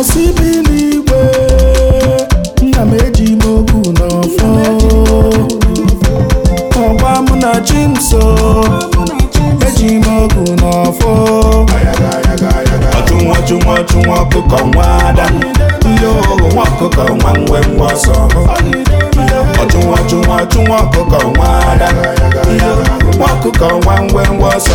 Asị bi n'igwe nna m eji m ogwu n'ọfọ ọgwa m na chi m eji m ogwu n'ọfọ ọchụnwa chụnwa chụnwa ọkụkọ nwa ada ndị ohu nwa ọkụkọ nwa nwe nwa ọsọ ọchụnwa chụnwa chụnwa ọkụkọ nwa ada nwa ọkụkọ nwa nwe nwa ọsọ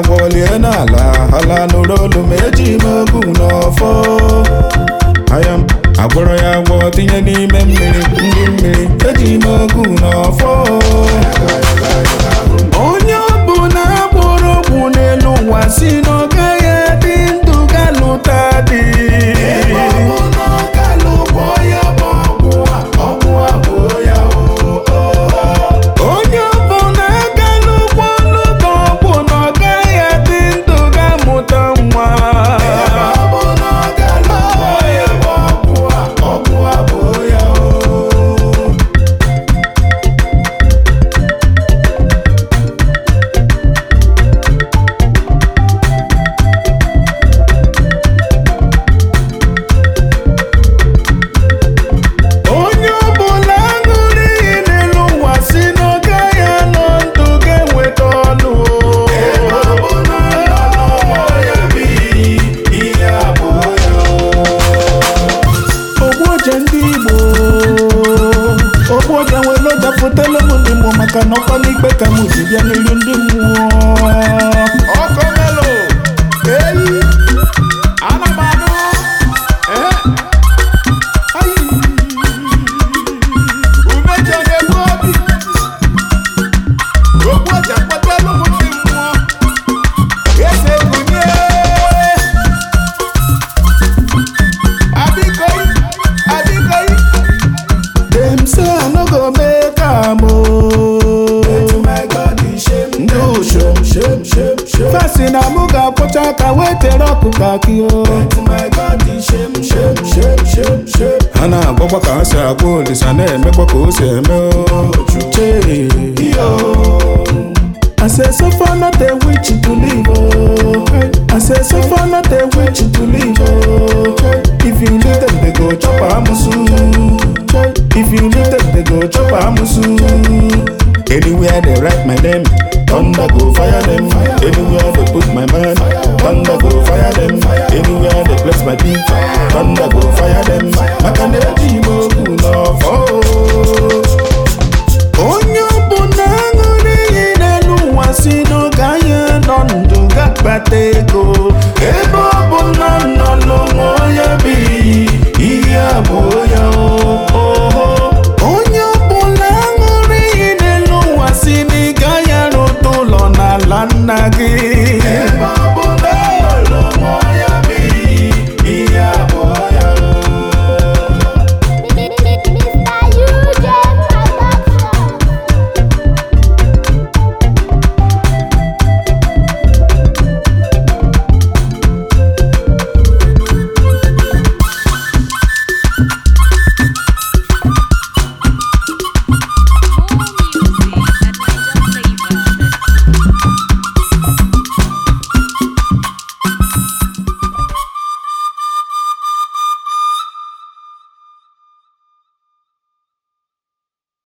agwọlie n'ala ala nụrụ olu ma eji m ogu n'ọfọ aya m agwọrọ ya agwọ tinye n'ime mmiri ndị mmiri eji ime ogu n'ọfọ maka na ikpe ka mụ ji bịa n'iru ndị mmụọ Ebe ka wetere ọkụkọ akị o Ha na-agwọkwa ka ha si agwa olisa na-emekwa ka o si eme o I o! Anywhere they Anywhere they bless my people, thunder go fire Maka na-eji okwu n'ọfọ. Onye ọ na aṅụrị iyi n'elu ụwa si nọ ndụ ga ego. Ebe ọ bụ na nọ n'ụmụ onye bi ihe a bụ